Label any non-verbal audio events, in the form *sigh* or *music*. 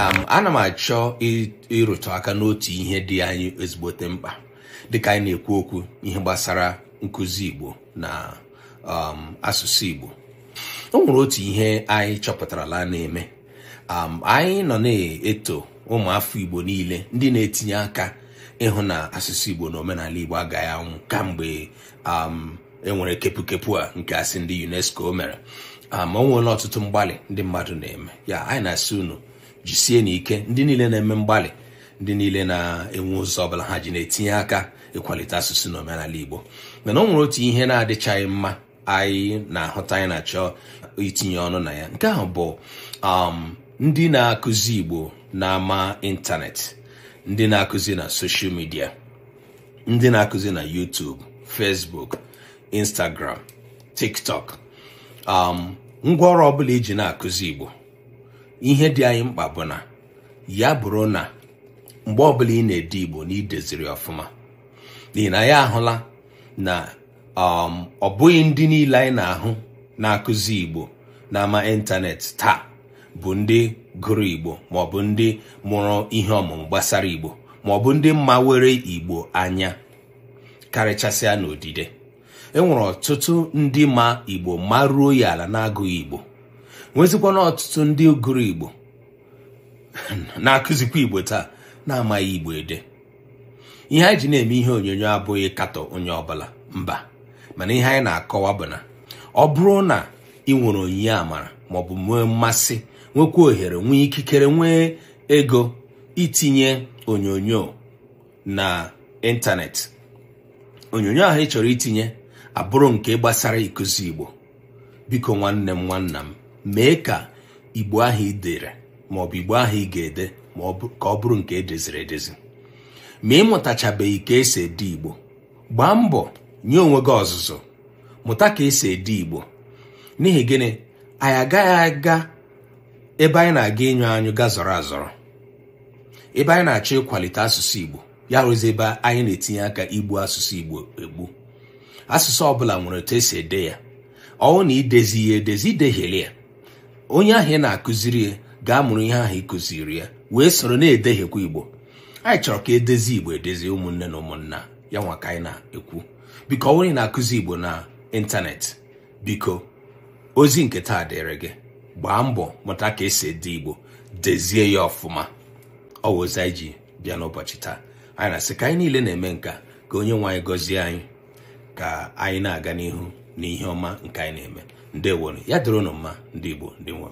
ana m achọ ịrụtụ aka n'otu ihe dị anyị ezigbote mkpa dịka anyị na-ekwu okwu ihe gbasara nkụzi Igbo na um, asụsụ Igbo o nwere otu ihe anyị chọpụtarala na-eme anyị nọ na-eto ụmụafọ Igbo niile ndị na-etinye aka ịhụ na asụsụ Igbo na omenala Igbo agaghị anwụ kamgbe enwere kepukepu a nke asị ndị UNESCO mere o nweela ọtụtụ mgbalị ndị mmadụ na-eme ya anyị na-asị unu jisie na ike ndị niile na-eme mgbalị ndị niile na-enwe ụzọ ọbụla ha ji na-etinye aka ịkwalite asụsụ na omenala Igbo mana ọ nwere otu ihe na-adịchaghị mma anyị na-ahụta anyị na-achọ itinye ọnụ na ya nke ahụ bụ um, ndị na-akụzi Igbo na-ama ịntanetị ndị na-akụzi na soshal midia ndị na-akụzi na yutub fesbuk Instagram TikTok um ngwaọrụ ọbụla iji e na-akụzi Igbo ihe dị anyị mkpa bụ na ya bụrụ na mgbe ọbụla ị na-ede igbo na ideziri ọfụma n'ihi na ya ahụla na um, ọ bụghị ndị niile anyị na-ahụ na-akụzi igbo n'ama ịntanetị taa bụ ndị gụrụ igbo ma ọ bụ ndị mụrụ ihe ọmụmụ gbasara igbo ma ọ bụ ndị igbo anya karịchasịa n'odide e nwere ọtụtụ ndị ma igbo maruo ya ala na-agụghị igbo nwezikwana ọtụtụ ndị gụrụ igbo *laughs* na-akụzikwa igbo taa na-amaghị igbo ede ihe anyị ji na-eme ihe onyonyo abụghị katọ onye ọbụla mba mana ihe anyị na-akọwa bụ na ọ bụrụ na ị nwere onyinye amara maọbụ nwee mmasị nwekwa ohere nwee ikikere nwee ego itinye onyonyo na ịntanetị onyonyo ahụ ị chọrọ itinye abụrụ nke gbasara ịkụzi igbo biko nwanne m nwanna m mee ka igbo ahụ ị dere ma ọ bụ igbo ahụ ị ga-ede ka ọ bụrụ nke edeziri edezi ma ị mụtachabeghị ka esi ede igbo gbaa mbọ nye onwe gị ọzụzụ mụta ka esi ede igbo n'ihi gịnị anyị agaghị aga ebe anyị na-aga ịnyụ anyụ ga zọrọ azọrọ ebe anyị na-achọ ịkwalite asụsụ igbo ya rụzi ebe anyị na-etinye aka igbu asụsụ igbo egbu asụsụ ọbụla nwere otu esi ede ya ọwụ na idezi ya edezi idehiele ya onye ahụ ị na-akụziri ya ga-amụrụ ihe ahụ ị kụziri ya wee soro na-edehiekwa igbo anyị chọrọ ka edezi igbo edezi ụmụnne na ụmụnna ya nwa ka anyị na-ekwu biko onye na-akụzi igbo na ịntanetị biko ozi nke taa dịrị gị gbaa mbọ mụta ka esi ede igbo dezie ya ọfụma ọ ozi anyị ji bịa n'ụbọchị taa anyị na-asị ka anyị niile na-eme nka ka onye nwe anyị gọzie anyị ka anyị na-aga n'ihu na ihe ọma nke anyị na-eme ndewonu ya dịrị unu mma ndị Igbo ndị nwe